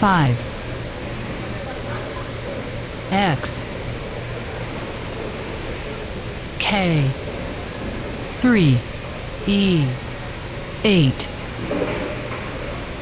5 X K 3 E 8